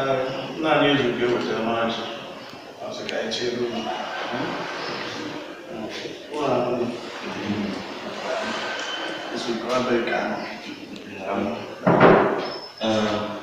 uh, not usually good with them, honestly. I was like, isso chill. Well, this week, I'm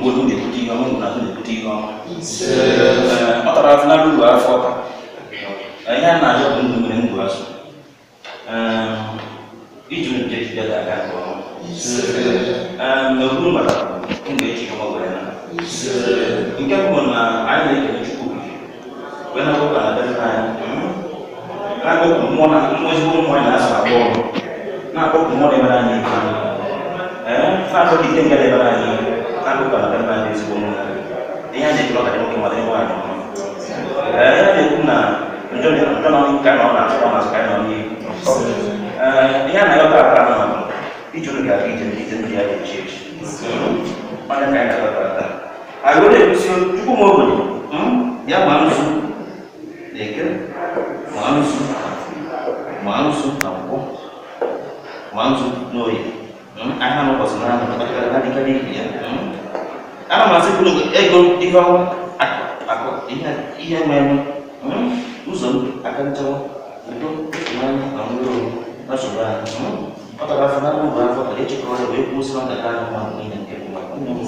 mgbe unu na-ebute ihe na ahụ na-ebute ihe ọma ọ tara afụnara uru afọ ọka ihe a na-ahịa bụ ndụ nwere ngwụ azụ iji nje jide ga-aga nke ọma n'okpuru maka ndụ eji ọma gwara na nke bụ na anyị na-ekele chukwu wee na ụka na dere anyị na-akpọpụ mmụọ na mmụọ mmụọ anyị na-asa abụọ na-akpọpụ mmụọ na ebere anyị ihe na-akpọkite ngara ebere anyị ihe kan buka kan mandi sebelum ini aja kalau tadi mungkin mau bukan eh dia punya, menjual dia menjual nong ikan nong nasi nong nasi kain nong ini kan eh, ayo tak pernah nong di jual gak ijen, ijen dia di church mana kain kata kata ayo deh sih cukup mau beli hmm ya manusia deke ya, manusia manusia tampok manusia noy ana mo basmana mo kadi kadi kadi ya ana masih belum eh belum aku aku iya iya memang hmm? uzon akan coba itu mana kamu belum hmm? atau kan, mau berapa kali cukup ada web muslim dan kamu mau ini yang kamu mau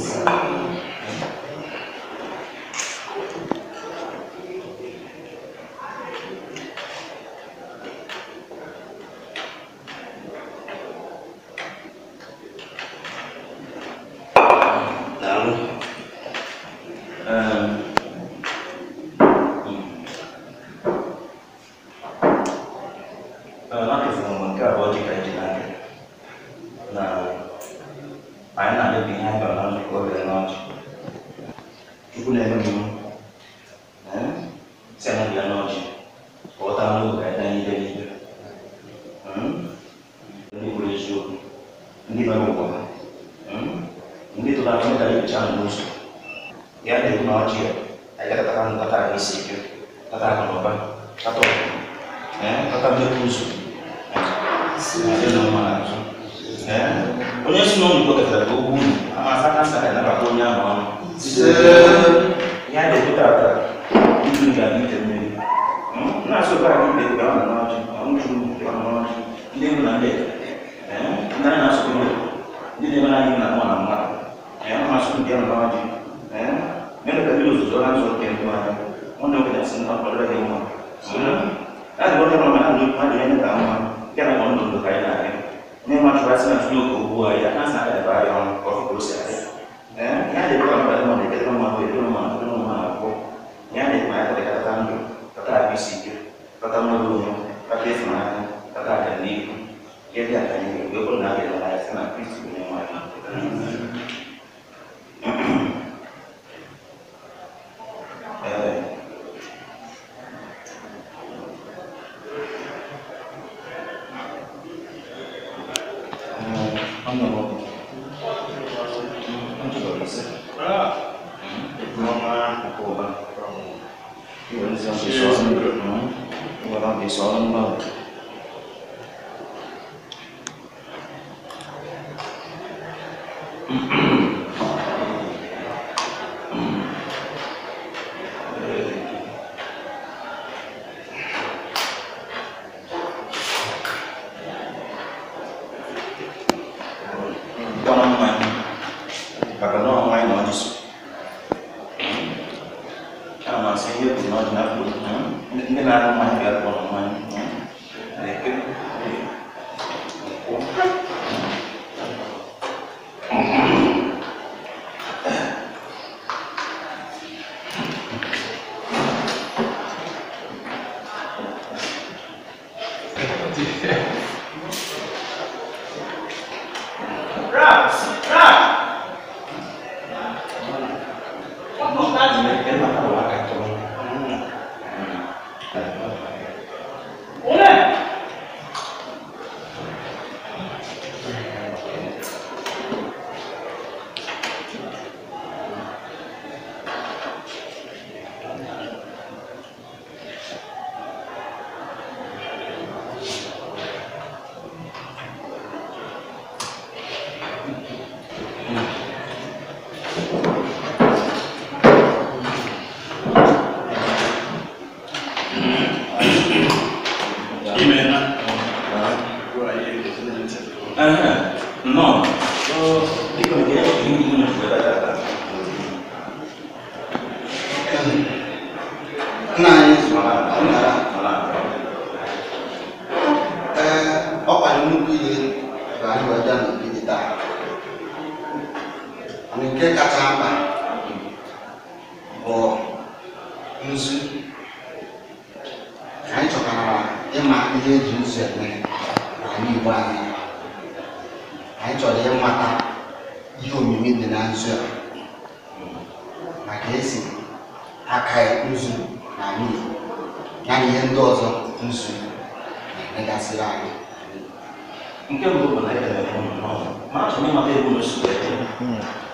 Sit. Pak, di soalnya ndị ọzọ nzu na-emegasịrị anyị nke mbụ bụ na ekelere ụmụ n'ọrụ ma achọrọ ịmata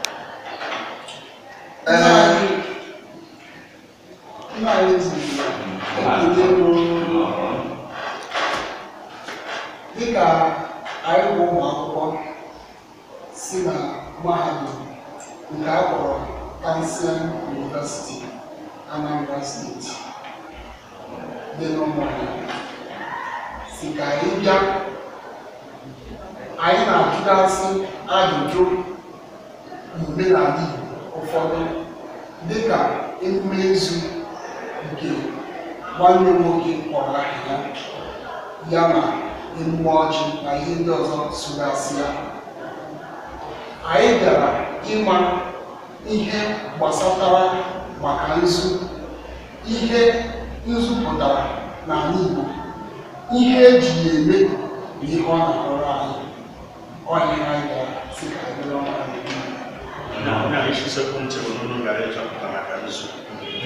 usiku mche Bununu ngaletwa kutamakanishwa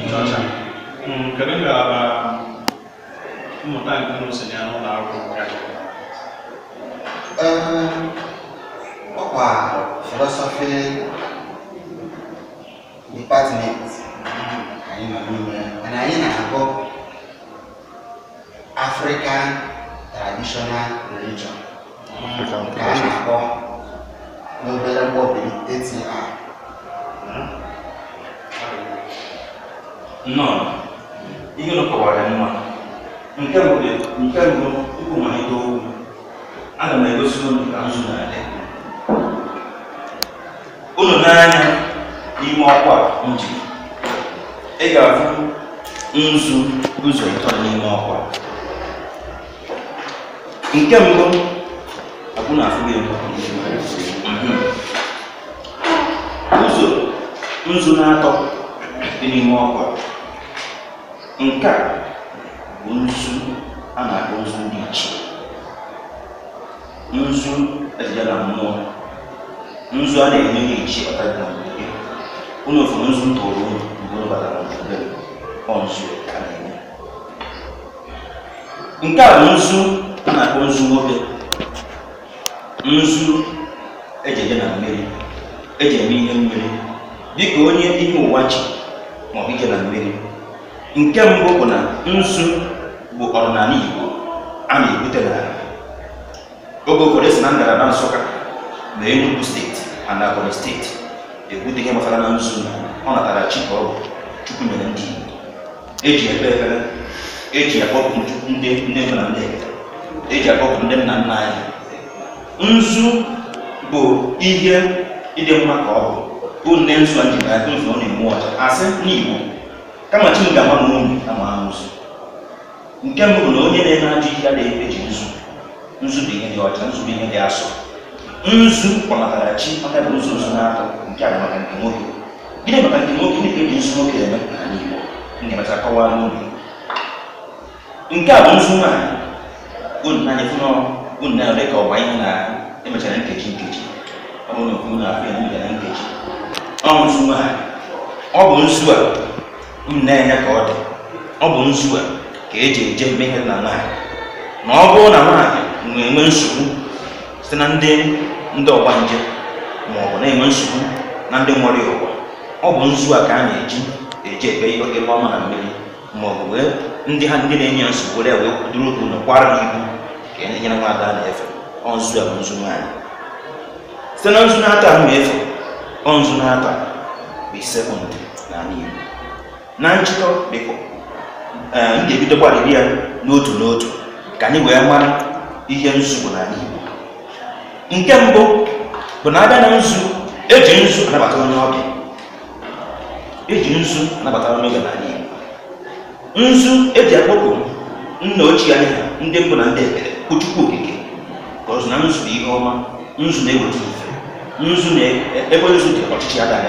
nchọcha kedu ngalaba mmụta nke unu uh, si ya n'ụlọ akwụkwọ ya ọkwa philosophy department anyị nọ n'ime na anyị na-agụ african uh, traditional religion ka a na-akpọ n'obere mkpọbi 8 a nnọọ ihe nọkọwara mma nke mbụ tupu malite okwu aga m egosi unu ka nzu na-adị n'ime ọkwa nji ị ga-afụ nzu n'ụzọ ịtọ n'ime ọkwa nke mbụ abụ na afụ gị nzu na-atọ dị n'ime ọkwa nke a bụ nzu a na-akpọ nzu dị iche nzu ejije na mmụọ nzu a na-enye n'ichi ọtara na mgbe unu fụrụ nzu tụrụ unu mgbe unu batara n'obodo ọ nzu ka na-enye nke a bụ nzu a na-akpọ nzu nwoke nzu ejeje na mmiri eji ihe mmiri dịka onye ihe ụwa ji maọbụ ike na mmeri nke mbụ bụ na nzu bụ ọdịnala Igbo a na-ebute n'ala oge ụfọdụ e si na ngalaba Nsụka na Enugu steeti ana Ebonyi steeti ebute ihe gbasara na nzu ọ natara chi ka ọ bụ Chukwu nyere ndị Igbo eji ekpe ekpere eji akpọpụ ndị nne na ndị eji e akpọpụ ndị nna nna anyị nzu bụ ihe ịdị mma ka ọ bụ bụ nne nsọ ji na akụ nsọ ọ na-enwe ọcha asị n'Igbo kama chi nke mbụ na onye na-eme ajọ ihe adịghị eji nzu nzu bụ ihe dị ọcha nzu bụ ihe dị asọ nzu chi maka bụ nzu nzu na-atọ nke a maka nke nwoke gịnị maka nke nwoke ndị e nzu nwoke eme ndị kọwaa nke a bụ nzu nwaanyị unu na-anya fụ unu na-ere ka ọgba ihe na emechara nkeji nkeji ọ bụrụ na ọ nzu ha ọ bụ nzu a unu na-enye ka ọ dị ọ bụ nzu a ka eji eje mmehie na nwaanyị na ọ bụrụ na nwaanyị na-enwe nsogbu site na ndị ndị ọgba nje ma ọ bụ na-enwe nsogbu na ndị nwere ụwa ọ bụ nzu a ka a na-eji eji ebe ebe ọma na mmiri ma ọ bụ wee ndị ha ndị na-enye nsogbu were wee kwudoro okwu na kwara ha ibu ka e nyere nwaada na-efe ọ nzu a bụ nzu nwaanyị site na nzu na-ata ahụ efe ọ n'aka n'ata bụ sekọndị n'ala Igbo na njikọ biko eh, m ga-ebidokwarịrị ya n'otu n'otu ka anyị wee mara ihe nzu bụ n'ala Igbo nke mbụ bụ na abịa na nzu eji nzu anabata onye ọbịa eji nzu anabata onye ọbịa n'ala Igbo nzu eji akpọpụ nna ochie anyị ndị mbụ na ndị ekele bụ Chukwu okike ka ọzụ na nzu bụ ihe ọma nzu na-eweta nzu ebe nzu dị ọchịchị ya dara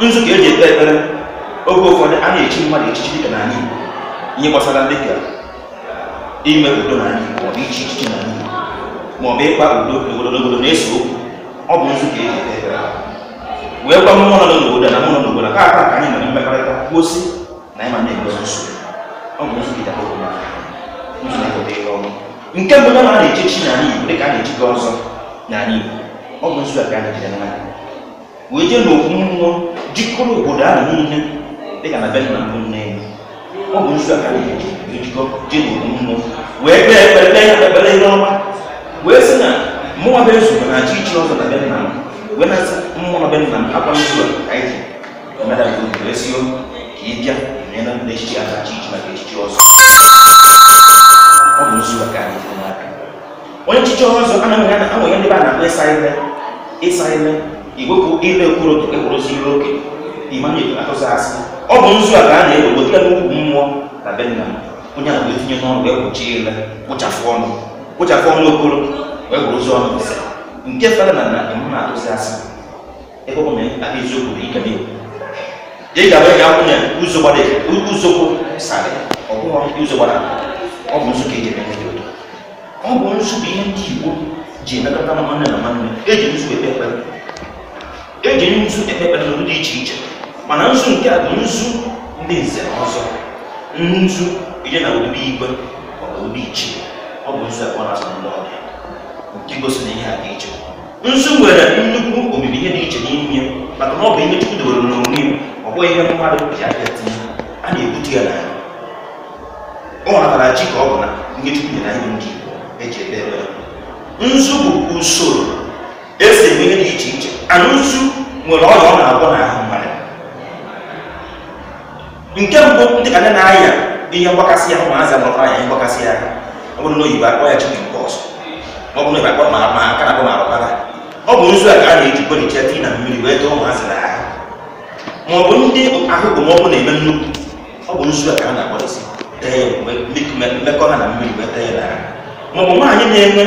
nzu ka eji ekpe ekpere oge ụfọdụ a na-echi mmadụ echichi dịka n'ala Igbo ihe gbasara dịka ime udo n'ala Igbo maọbụ ichi echichi n'ala Igbo maọbụ ịkpa udo n'obodo na-eso okwu ọ bụ nzu ka eji ekpe ekpere wee gwa mmụọ nọ n'obodo na mmụọ n'obodo ka aka ka anyị nwere mmekọrịta kwuosi na ịma na-egozi nsogbu ọ bụ nzu gidara obodo nzu na-ekpete ihe ọnụ nke mbụ na a na-echechi n'ala Igbo dịka a na-echi gị ọzọ n'ala Igbo ọ bụ nzu a ka anyị wee jee n'okwu mmụọ jikọrọ obodo ahụ niile dịka na benna mbụ nne ya ọ bụ nzu a ka ejikọ jee n'okwu mmụọ wee kpee ekpere kpee ekpere ihe wee sị na mmụọ be nzu na achị ichi ọzọ na benna m wee na-asị mmụọ bụ benna m akwa a anyị ji wee si o ka ị bịa na ya na a na achị ichi maka echichi ọzọ ọ bụ nzu a ka n'aka onye nchichi ọzọ anaghị ya na ndị a na akpụ ịsa ime ịsa ime iwepụ ile ekwuru otu ekwurozi ihe oke imanye atụzi asị ọ bụ nzu a ka a na-egbo gbotere n'ukwu mmụọ na be nna onye a etinye n'ọrụ wee kpuchie ile kpụchafụ ọnụ kpụchafụ ọnụ okoro wee kwurozi ọnụ nke fere na na atụzi asị ebe na aka eziokwu ike n'egwu ị ga-abụ ọ bụ nsụ bụ ihe ndị Igbo ji emekọta na nwanne na nwanne eji nzu ekpe ekpere eji nzu ekpe ekpere n'ụdị dị iche iche mana nzu nke a bụ nzu ndị nze na ọzọ nzu ije na obibi igwe maọbụ obi iche ọ bụ nzu akpọ na-asa ndị ọbịa nke gosi na ihe a dị iche nzu nwere nnukwu omimi ihe dị iche n'ime maka na ọ bụ ihe Chukwu debere n'onwe ya ọ bụghị ihe mmadụ bịa tinye a na-ebute ya n'ahụ ọ natara chi ka ọ bụ na nke Chukwu nyere anyị ndị Igbo eji nzu bụ usoro esi eme dị iche iche ana nwere ọrịa ọ na-agwọ n'ahụ mmadụ nke mbụ ndị ka ndị na-aya ihe mgbakasị ahụ ya ihe mgbakasị ahụ ọ bụrụ na oyibo akpọ ya chikin pọs ọ bụrụ na akpọ ma ma aka na ma arụbara ọ bụ nzu a ka na-eji tii na mmiri wee dọọ ụmụazị na ahụ ma ọ bụ ndị ahụ bụ na-eme nnukwu ọ bụ nzu a ka a na-akpọrịsị tee mmekọ ha na mmiri wee tee ya maọbụ nwaanyị na-enwe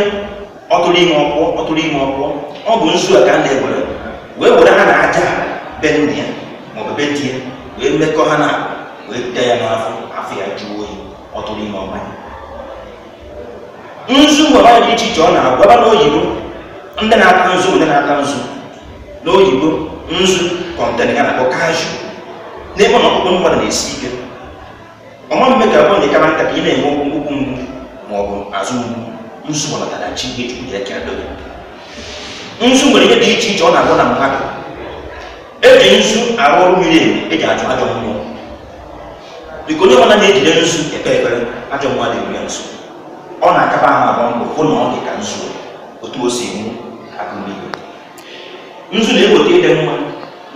ọtụrụ ime ọkpụọ ọtụrụ ime ọkpụọ ọ bụ nzu a ka a na-ewere wee were ha na aja be nne ya maọbụ ya wee mekọ ha na wee da ya n'afọ afọ ya jụọ oyi ọtụrụ ime ọbanya nzu nwere dị iche iche ọ na-agwaba n'oyibo ndị na-ata nzu ndị na-ata nzu n'oyibo nzu kọntena ya na-akpọ kaju n'ebe ọnọkpụkpụ mmadụ na-esi ike ọma mme ka abụọ na ịkara nta ka ị na-enwe ụkwụ mgbu ma ọ bụ azụ nsu gbọnatara chi ihe chukwu ya kere dobe nsu nwere ihe dị iche iche ọ na-agwọ na mmadụ eji nsu arụ ọrụ miri emi eji ajụ ajọ mmụọ biko onye ọbụla na-ejide nsu ekpe ekpere ajọ mmụọ dị ya nso ọ na-akaba ahụ agba mbọ hụ na ọ dị ka nsu otu o si enwu akụmigwe nzu na-eweta ịdị mma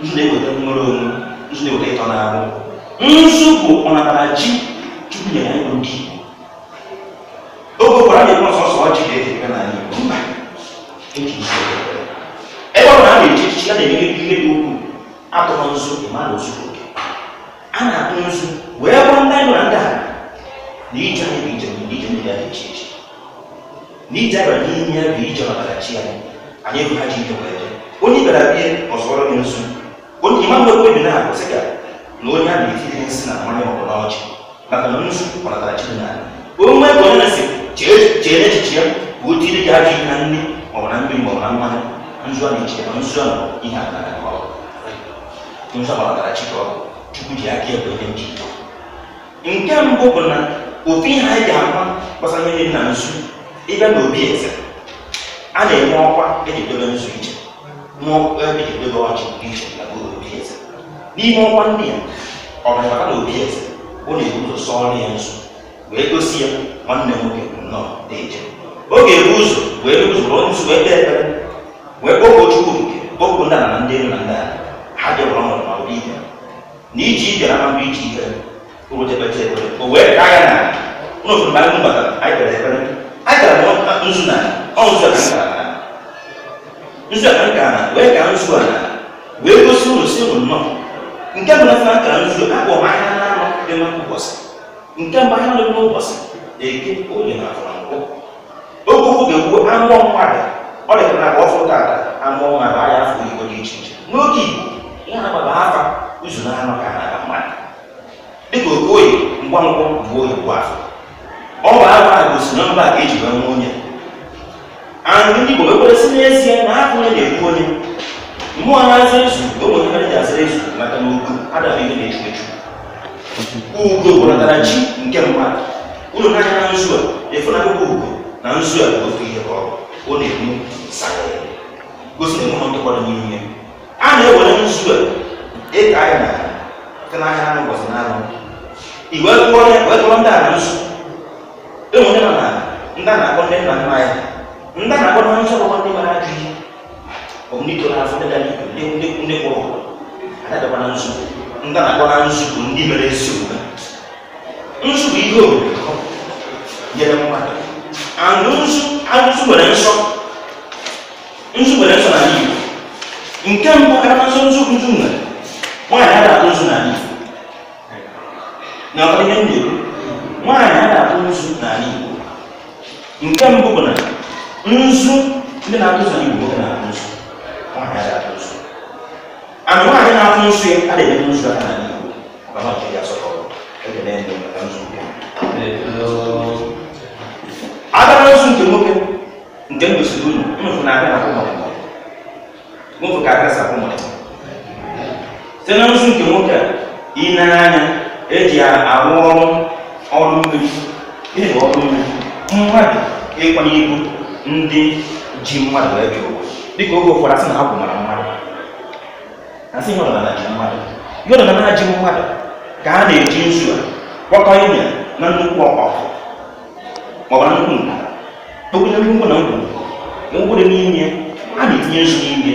nzu na-eweta nwere onwe nzu na-eweta ịtọ na-arụ nzu bụ ọnatara chi chukwu nyere anyị bụ ndị oge ụkwara anyị e eme ọsọsọ ọjị ga-eme n'ala Igbo mba ebe ọ na a echichi a na-enyere ihe dị ukwuu atụrụ nzu ozugbo a na-atụ nzu wee gwa ndị anyị na ndị a anyị bụ ije ije ya dị iche iche na ije anyị ya bụ ije chi anyị anyị ha ji ije wee onye bịara bie ọzọrọ nzu onye mgbe na-akwụsị na onye a na-etiri nsị na mmanya ọbụla ọchị maka chere echiche ka o tiri gị ajọ ihe na nri maọbụ na mmiri maọbụ na mmanụ nzu a na-eche ma nzu a ihe agara ka ọ nzu a gbara chike ọgụ chukwu ji aka ebe ihe nji nke mbụ bụ na ofu ihe anyị ga-ama gbasara ihe na nzu ịbịa na obi eze a na-enwe ọkwa eji dobe nzu iche n'ọkwa eji dobe ọchị iche na obi eze n'ime ọkwa ndị ya ọ bụrụ na obi eze ọ na-ebu ụzọ sọọ ya nzu wee gosi ya nwanne nwoke nnọọ na oge ebu ụzọ wee rụzụrụ nzu wee kpee ekpere wee kpọpụ chukwu nke kpọpụ nna na ndị elu na ndị ha bịakwara ọrụ na ọrụ ibe na iji ibe na iji ibe rụtepeta ekpere o wee kaa na ụlọ anyị kpere ekpere nzu na nzu a wee nzu wee gosi ụlọ si ụlọ nnọọ nke na kara nzu akpọ ahịa na anọ dị nke ahịa na-eke onye na-afọ nkụ oge ụfụ ga-ekwu amụọ mmadụ ọ dị ka na ọfụ tata amụọ mmadụ anya afọ igbo dị iche iche n'oge igbo ya na-agbaba afa ụzụ na anụ ka na mmadụ dịka okoye ngwa ngwa bụ oyibo afọ ọ bụ afọ a gosi na mba ka eji wee nwe onye anyị ndị igbo ekweresị n'ezie na afọ onye na-ekwu onye mmụọ na-aza ezu ogbe ihe mere ji ezu maka na ugo adabụ ihe na-echu echu ugo gwọnatara chi nke mmadụ unu na-anya na a na akwụkwọ ugo na nzu a bụ otu ihe ọ ọ na gosi na n'ime a na-ewere nzu a ịka na na na anụ akwụkwọ wee ndị a na nzu enwe onye na ndị a na-akpọ ndị nna nna ya ndị a na-akpọ na nzu ndị mara ajụ ihe ọ bụ ndị ndị igwe ndị kwụrụ na nzu ndị a na yɛrɛ mo ma ano nso ano nso so, nsɔ nso wɛrɛ nsɔ n'ale yi nke mbɔ kata nso ada atụ nso n'ale yi na ọ dịghị ada atụ nso n'ale yi nke mbụ bụ na nso ndị na-atụ nso n'ale yi nwoke na-atụ ada atụ nso ana nwaanyị na-atụ nso ya adịghị nso aka n'ale yi ọkama agarasu nke nwoke nke m gosiri unu mụfụ na abịa na mụfụ ka não sapụ mụrụ site na nzu nke nwoke a ị na-anya eji arụ ọrụ ọrụ mmiri ihe bụ ọrụ mmiri mmadụ ịkwanye ibu ndị ji mmadụ eji ụwa dịka oge ụfọdụ asị na ha bụ mara mmadụ asị ihe ọdịnala ji mmadụ é ọdịnala ji mmadụ ka a na mawana nkun tokunya bi nkun na nkun mo nkun de ni nyɛ a de tiɲɛ su ni nyɛ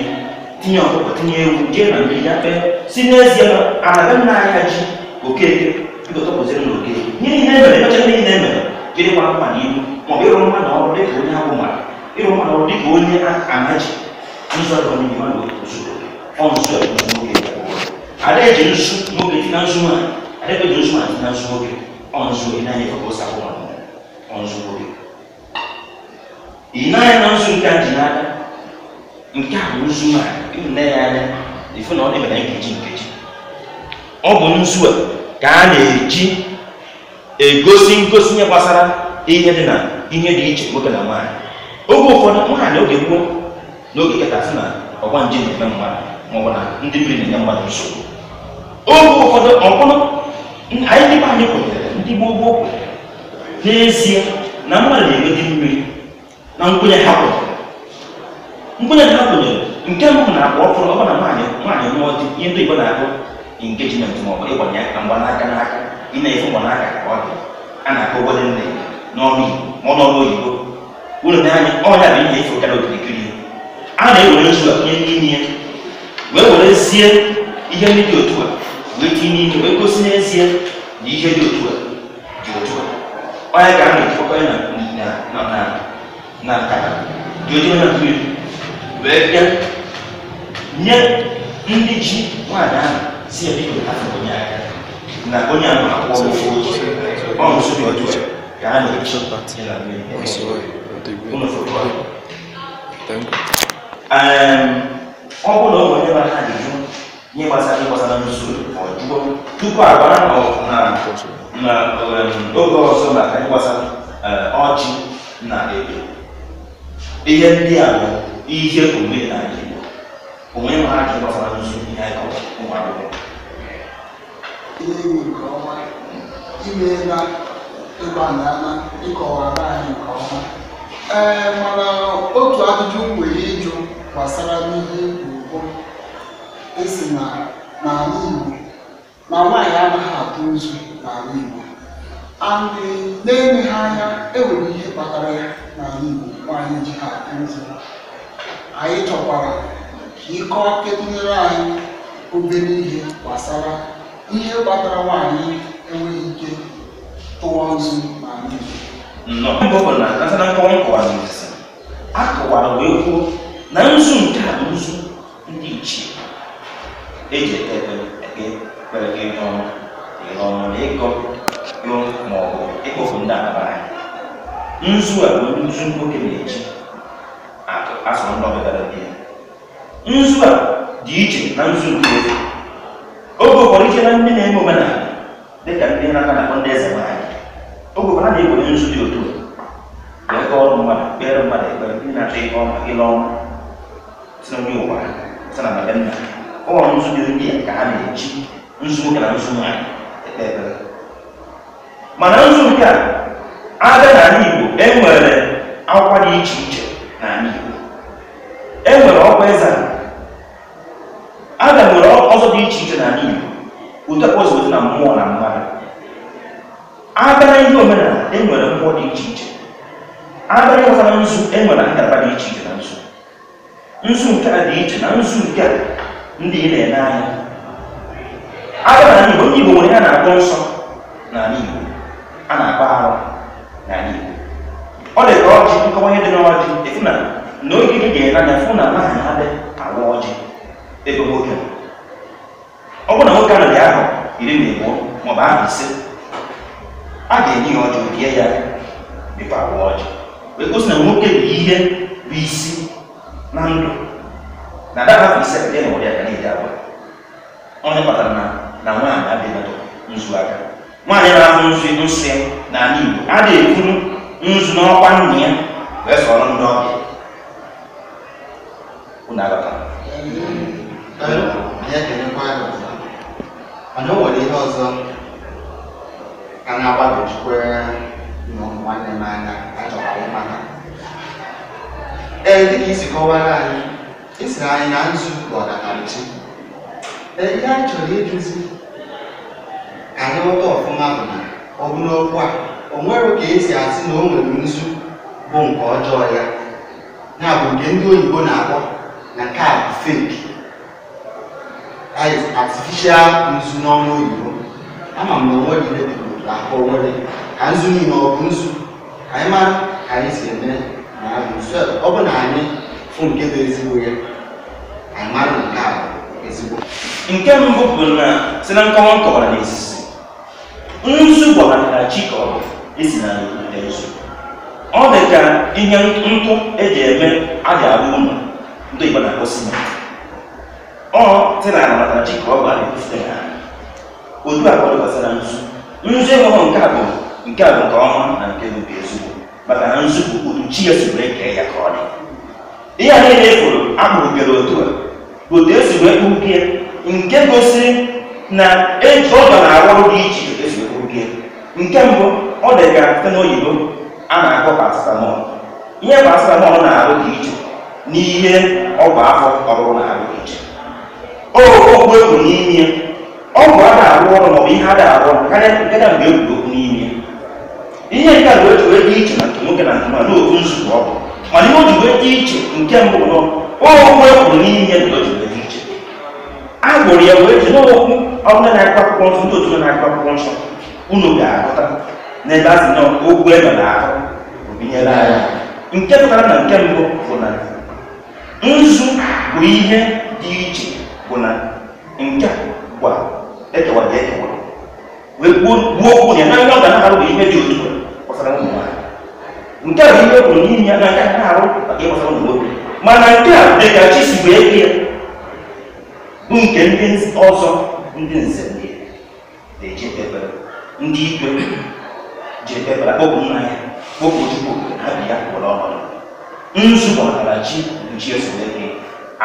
tiɲɛ ɔkɔ tiɲɛ ewu diɛ na bi ya pɛ si ne zie na anaga na ya dzi oke ibi ɔtɔ kɔ sɛnɛ n'oke nye ni ne mɛlɛ n'ɔtɛ ne ni ne mɛlɛ dze de wa ma ni ibu mɔ bi yɔrɔ ma na ɔrɔ de ko ne abo ma yɔrɔ ma na ɔrɔ de ko ne ana dzi nsu ɔtɔ mi ma do osu do ɔn su ɛfu mo ke ale dze nsu mo ke tina nsu ma ale pe dze nsu ma tina nsu mo ke ɔn su ina yɛ kɔkɔ sa ko ma. ọzụzụ ị naghị na nzu nke a ji n'aka nke a bụ nzu a ịnne ya anya ifu na ọ dịbara nkeji nkeji ọ bụ nzu a ka a na-eji egosi ngosi ihe gbasara ihe dị na ihe dị iche nwoke na nwaanyị oge ụfọdụ nwaanyị oge gboo n'oge kịta sị na ọgba nje na-eme mmadụ maọbụ na ndị mmiri na-enye mmadụ nsogbu oge ụfọdụ ọbụrụ anyị dịbe anyị kwenyere ndị gboo gboo kwenyere n'ezie na mmadụ na-enweta mmiri na nkwenye ha nkwenye ha nke mbụ na-akpọ ọfụrụ ọ na nwaanyị nwaanyị mụọ di ihe ndị Igbo na-akpọ engejiment ma ịgbanye aka n'aka ị na-efu mgbanaka ka ọ dị a na-akpọ nne n'ọnụ Igbo ma ọ n'ọnụ oyibo ọnya bụ ihe efu karịa okirikiri a na-ewere nzu a nye n'ime ya wee werezie ihe ndị dị a na ihe dị otu oya ka ana efokọ ya na na na nkata dozie na mmiri wee bịa nye ndị ji nwaanyị ahụ si ya biko afọ onye aka na onye ahụ akwụọ ofe otu ọ nso dị otu ka a na-eche ịla mmiri ụlọ foto ọ bụrụ na ụmụ onye mara ha dị jụ nye gbasara ịgbasara n'usoro ọ jụọ tupu agwara na na oge ọzọ na gbasara e, ọjị na ebe ihe ndị a bụ ihe omenala Igbo omenala ji gbasara nzu ihe anyị kọrọ ụmụ akwụkwọ nke ọma anyị nke ọma ee mana otu ajụjụ nwere ịjụ gbasara n'ihe ugbo esi na n'ala Igbo na nwaanyị anaghị atụ nzu n'ala Igbo and na-ele anya enwere ihe kpatara ya n'ala Igbo nwaanyị ji ha nzụ anyị chọkwara ka ịkọọ kedunyere anyị obere ihe gbasara ihe kpatara nwaanyị enweghị ike tụwa nzu n'ala Igbo nnọọ bụ na natana kọnkọwazisi a kọwara wee kwuo na nzu nke a nzu ndị ichie eji ekpere ekpere gị ihe ọma n'ọnụnụ ịgụ ịgụ ma ọ bụ ịkpọpụ ndị nzu a bụ nzu nwoke na-eji asọ ndị ọbịbara di ya nzu a dị iche na nzu nke oge ụfọdụ iche na ndị na-eme omenala dịka ndị na-aka na ndị eze nwaanyị oge ụfọdụ na nzu dị otu wee kọọ ọrụ mmadụ kpere mmadụ ekpere ndị na-achọ si na ụwa si na nna nzu dị ndị ka ha na-eji nzu nwoke na nzu nwaanyị mana nzu nke a abịa n'ala Igbo enwere akwa dị iche iche n'ala Igbo enwere ọkwa eze aga nwere ọzọ dị iche iche n'ala Igbo ụdị ozi na mmụọ na mmadụ abịa na ihe omenala enwere mmụọ dị iche iche abịa ịghọta na nzu enwere nkata dị iche iche na nzu nzu nke a dị iche na nzu nke a ndị ị na-ene anya agara na Igbo ndị Igbo nwere ya na-akpọ nsọ n'ala Igbo a na-akpọ arụ n'ala Igbo ọ dị ọjị nkọwa ihe dị n'ọjị efu na n'ogige ga-ele anya fụ na nwaanyị adị awa ọjị ebe nwoke ọ bụrụ na nwoke anaghị ahụ iri na abụọ maọbụ ahụ ise a ga-enye ya ọjị bie ya dịkwa awa ọjị wee gosi na nwoke bụ ihe bụ isi na ndụ na adabapụ ise dị na ụdị aka na-eji agwa onye kpatara na na nwaanyị abịaghị nzu aka nwaanyị na ahụ nzu edosi ya n'ala Igbo a na-eburu nzu n'ọkwa nna ya wee sọrọ ndị ọbịa unu mana o nwere ihe ọzọ ka na nwanne m anya achọkwara ee dịka isi ihe anyị chọrọ ịjụzi ka anyị ghọta ọfụma bụ na ọ bụ n'okwu a o nwere ka esi asị na o nwere nzu bụ nke ọjọọ ya ya bụ nke ndị oyibo na-akpọ na nke a bụ fake artificial nzu n'ọnụ oyibo ama m na onwe gị debigoro ahụ nwere ka nzu niile ọ bụ nzu anyị mara ka anyị si eme na ọ bụ na anyị fụ nke bụ ezigbo ya anyị nke mbụ bụ na si na nkọwa nkọwara na esisi nzu gwara na ji kọrọ esi na nzu ọ dị ka ihe ntụ eji eme a ga-arụ ụlọ ndị Igbo na-akpọ simenti ọ dị na ala maka ji ka ọ gbara efute na otu a kọdụkwasị gbasara nzu nzu enweghị nke a bụ nke a bụ nke ọma na nke bụ ezigbo maka na nzu bụ otu chi ya si wee ya ka ọ dị ihe a niile efuru akpụrụ bịara otu a otu esi wee kpụrụ ya nke gosi na eji ọdọ na arụ dị iche iche esi ekwuke nke mbụ ọ dị ka site n'oyibo a na-akpọ paracetamol ihe paracetamol na-arụ dị iche n'ihe ọgwụ afọ ọrụ na-arụ dị iche ogwu egwu n'ime ọgwụ a na-arụ ọrụ maọbụ ihe a na-arụ karịa nke na mgbe egwuru okwu n'ime ihe nke a bụ eji dị iche na nke nwoke na nke nwaanyị n'otu nzukọ ọgwụ mana ihe o ji wee dị iche nke mbụ nọ ogwu egwu n'ime na o a gbụrụ ya wee jiri okwu ọbụla na nsọ ndị otu na-agụ akwụkwọ nsọ unu ga-agụta n'ebe a sị na ebe na ahụ obinyere nke pụtara na nke mbụ bụ na nzu bụ ihe dị iche bụ na nke gwa ekewa dị ekewa wee gbuo okwu ya na ndị na-arụ bụ ihe dị otu ụmụ nwanyị nke bụ n'ihi na nke na-arụ maka a nke ndị ọzọ ndị nze ndị na ndị ikpe ji ekpebere kpọpụ nna ya kpọpụ chukwu na bi ya kwụrụ ọhụrụ nzụkọtara chi mkpuchi esole gị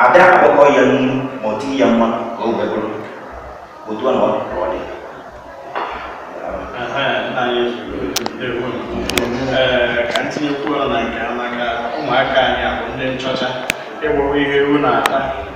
ada akpọkọ ya nnu ma ọ dị ya mma ka o wee otu a na ka na nke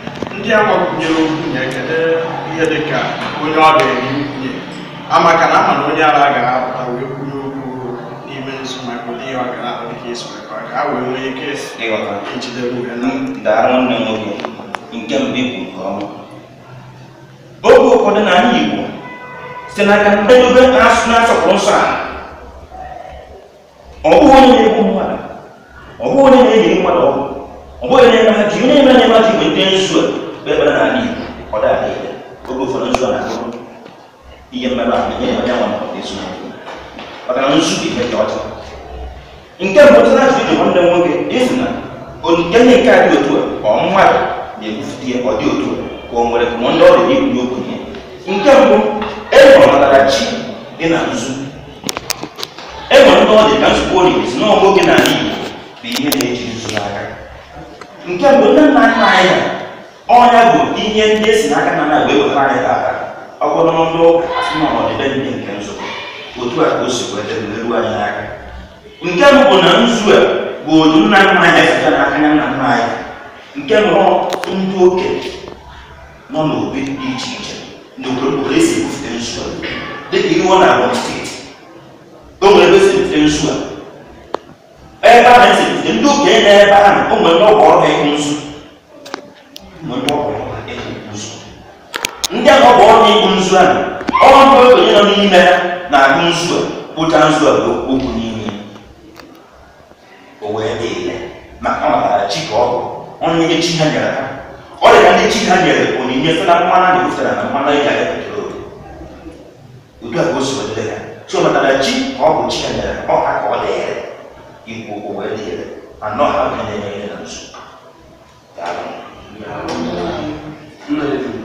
ndị a gbakwunyere okwunye kedu ihe dịka onye ọ ga-eri amaka na ama na onye ara ga-apụta wee kwunye okwu n'ime nzu maka ọ ga-ahụ dịka esi ka ha wee nwee ike ijide nwanne m nwoke nke mbụ ikwu nke ọma oge ụfọdụ na anyị Igbo site n'aka na-asọpụrụ nsọ a ọ bụghị onye na-egbu mmadụ ọ bụghị onye na-eyi mmadụ ọgwụ ọ bụghị na-eme haji onye na-eme na-eme haji bụ ndị nzu mgbe n'ala Igbo ọ ihe oge ụfọdụ nzu a na-abụrụ ihe mmerụ ahụ nye onye nwa maka ezu na maka na nzu ihe dị ọcha nke mbụ tụrụ ajụ dị nwanne nwoke ịzụ na onye nke a dị otu a ọ mmadụ na ọ otu ka o nwere ndị ọrụ ikwu ihe nke mbụ enwere chi dị na dị ka nzukọ olili si bụ ihe na-eji nke mgbe nne nna nna anyị ọnya bụ ihe ndị esi n'aka nna nna wee wetara anyị taata ọ bụrụ na ndị ụka n'ọdịbe ndị nke nzukọ otu a ka o si kweta ruo anyị aka nke mbụ na nzu a bụ otu nna nna anyị site n'aka nna nna anyị nke nọ ndị okenye nọ n'obi dị iche iche ndị okpokporo esi ebufute nzu a dịka iwe na abụ steeti o nwere ebe esi ebufute nzu a ebe ahụ esi ndị ndị okenye na ebe ahụ ụmụ ndị ọgwụ ọrụ ịhụ nzu ndị ahụ ọgwụ ọrụ ịhụ nzu ahụ ọrụ ndị okenye nọ n'ime na-ahụ nzu a kpụcha a bụ n'ime o wee dị ile ọ natara chi ka ọ bụ onye nye chi ha nyere ọ dị ka ndị ha nyere onyinye site na mmanụ na-ebufere na mmanụ ịga ya petrol otu a ka o si ọ bụ chi equal over there and not have any maintenance. Darling. Yeah. Mm. Mm.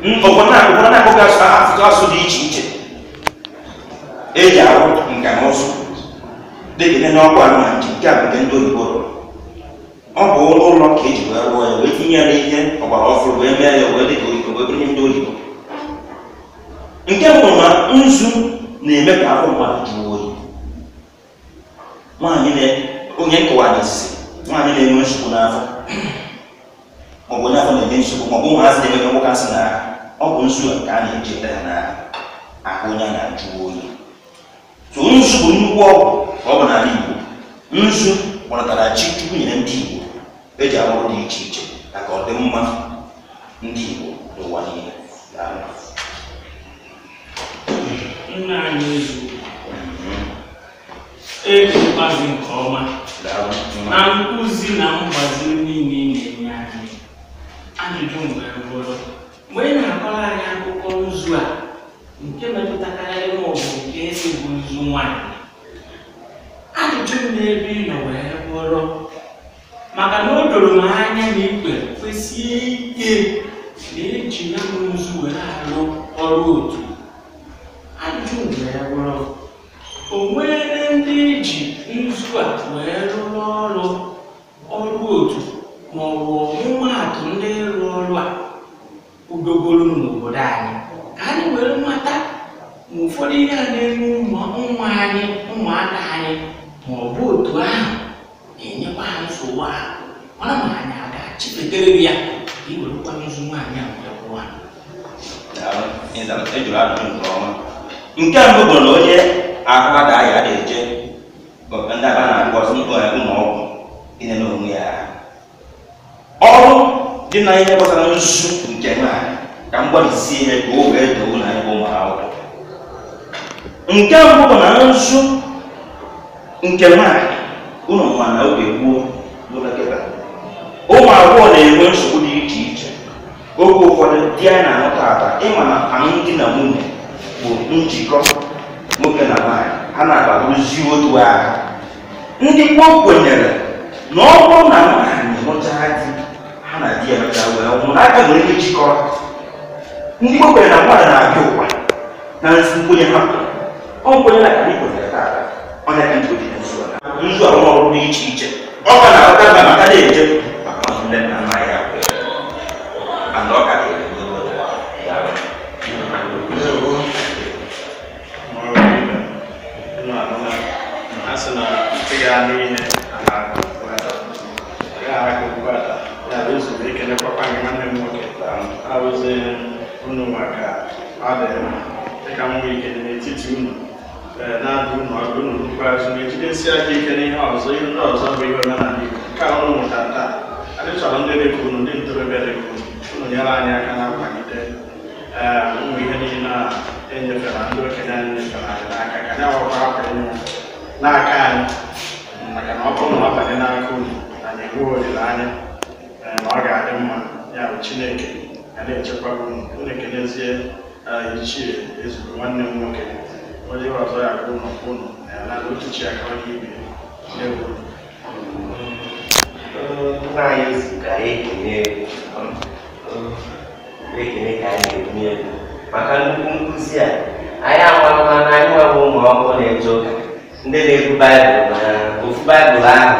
obodo na-akpọga asụsụ asụ dị iche iche eji arụ nka na ụzụ dịka n'ọkwa na nke a nke ndị oyibo ọ bụ ụlọ ka eji wee rụọ ya wee tinye ya ihe ọgbara ọfụrụ wee mee ya wee dịka oyibo wee bụrụ ndị oyibo nke mbụ na nzu na-eme ka afọ mmadụ jụọ oyi nwaanyị onye nkụwa n'isi nwaanyị na-enwe nsogbu n'afọ maọbụ onye afọ na-enye nsogbu maọbụ ụmụazị na-eme ka nwoke asị na ọ bụ nzu nke a na-echeta ya na ahụ ya na-ajụ oyi so nzu bụ nnukwu ọgwụ ka ọ bụ n'ala Igbo nzu kpọrọtara chi chukwu nyere ndị Igbo eji arụ dị iche iche ka ọ dị mma ndị Igbo n'ụwa niile nna anyị ezu mhm. eji mkpazi nke ọma na nkụzi na mgbaziri niile na-enye anyị ajụjụ mgbe bụrụ mgbe ị na-akọrọ anyị akụkọ nzu a nke metụtakarị ịmụ ọ nke esi bụ nzu nwaanyị ajụjụ m n'ebe ị nọ wee bụrụ maka na o doro m anya na ikpe kwesị ike na eji ya bụ nzu wee arụ ọrụ otu ajụjụ m wee bụrụ o nwere ndị eji nzu a wee rụrụ ọrụ ọrụ otu ma ọ bụ ọmụmaatụ ndị ịrụ ọrụ a kwudogolunu n'obodo anyị ka anyị were mata ma ụfọdụ ihe a na-eme ụmụ anyị ụmụaka anyị ma ọ bụ otu ahụ na-enyekwa ha nsogbu ahụ mara ma anyị aga ga-achipetere ya iwerekwa nzu nwaanyị a wee e kwụwa nke mbụ bụ na onye ahụ ada ya na-eje ndị aba na-akpọ ụlọọgwụ ịnene onwe ya ọrụ dina ihe gbasara nzuzu nke nwaanyị ka m gbalịsi ihe ka oge doo na anyị bụ ụmụ akwụkwọ nke mbụ bụ na nzu nke nwaanyị ụlọ nwa na oge gboo ụmụ agbọghọ na-enwe nsogbu dị iche iche oge ụfọdụ di anyị na-ahụ taata ịma na alụmdi na nwunye bụ njikọ nwoke na nwaanyị ha na-agbabụzi otu agha ndị gboo kwenyere na ọ bụrụ na nwaanyị mụchaa di na di ya mechara wee nwụọ n'aka nwere ihe jikọrọ ndị Igbo kwere na mmadụ na-abịa ụwa na nsi nkwenye ha ọ nkwenye na ka anyị kwenyere taata ọ na-aka ndị ojii nzu a nzu a ọrụ dị iche iche ọ ka na-akọta mba maka na-eje maka ọzọ nne na nna ya mana ọ ka ga-ere asị na ntị ya n'ihe a na-agụ ya ara ọkwa gị nwanne m nwoke arụziere unu maka adịghị dịka m nwee ike n'etiti unu na-adụ unu ọdụ unu n'ikpeazụ na-ejidesi aka ike n'ihe ọzọ ihe ndị ọzọ bụ ihe omenala Igbo nke a unu taa chọrọ ndị dịka ndị ntorobịa dịka unu unu nyere anyị aka na mkwagide ụmụ ihe niile a enyefere ndị okenye anyị nyefere anyị ka anyị awakwa akwa n'aka anyị maka na ọ bụrụ na ọ banye n'aka unu anyị olileanya ya bụ chineke na-echekwaba unu ichie ezuru nwanne m nwoke onye ọzọ ya bụ ụlọ ụnụ na ya nara ochichi ya kawa n'ibe n'egwu nna anyị ka ekene ekene ka anyị ebunye egwu maka nnukwu nkụzi a anyị amalụma na anyị nwebụ ụmụ ọhụrụ na-eje ụka ndị na-ebu baịbụl na ofu baịbụl ahụ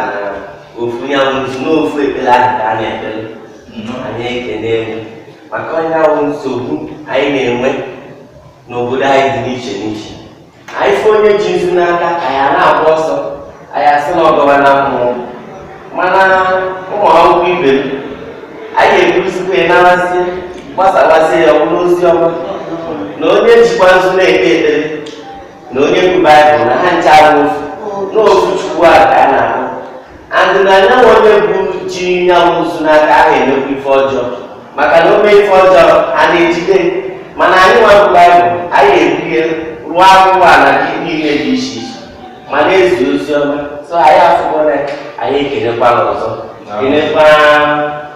na ofu ya n'ofu ekpere ahụ ka a na-ekpere anyị ekene maka onye ahụ nsogbu anyị na-enwe n'obodo anyị dị n'iche n'iche anyị fụ onye ji nzu n'aka anyị na-agba ọsọ anyị asị na na mmụọ mana ụmụ akwụkwọ ibe m anyị ebusikwa narasị gbasawasị ya ọbụla ozi ọma na onye jikwa nzu na-ekpe ekpere na onye bụ baịbụl na ha nche ahụ ofu n'ofu chukwu a ka a na-ahụ andịna anyanwụ onye bụ chi ya mụzụ n'aka ahụ emekwa ife ọjọọ maka na ome ife ọjọọ a na-ejide mana anyị nwa Baịbụl anyị ebuhe rụọ akwụkwọ ala gị niile dị iche iche ma na-ezi ozi ọma so anyị afụbọla anyị ekelekwala ọzọ kelekwa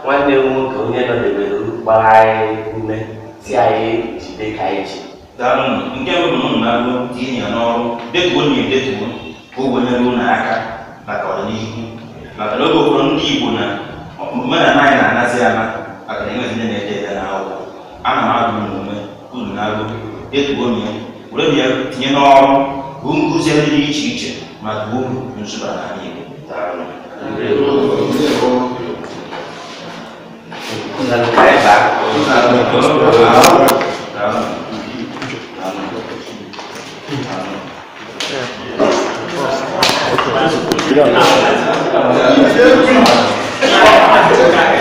nwanne m nwoke onye nọdebere gbara anyị ume si anyị jide ka anyị ji daalụ nke bụ na ụmụ na-alụ tinye ya n'ọrụ dịka ọ na-edetuo ka o wenyere ụlọ aka maka ọdịnihu akadoko kuna mtu kuna mara naye na anasema akaniwa zile nende na hao ana maadu mume kuna nalo yetu gomia ule bia tinyeno bunguze ndi ichiche madumu nzuba na nini tano kuna lukaeba kuna lukaeba 그냥.